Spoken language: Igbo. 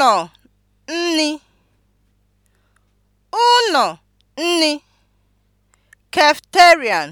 ụlọ nni ụlọ nni (Cafeterian)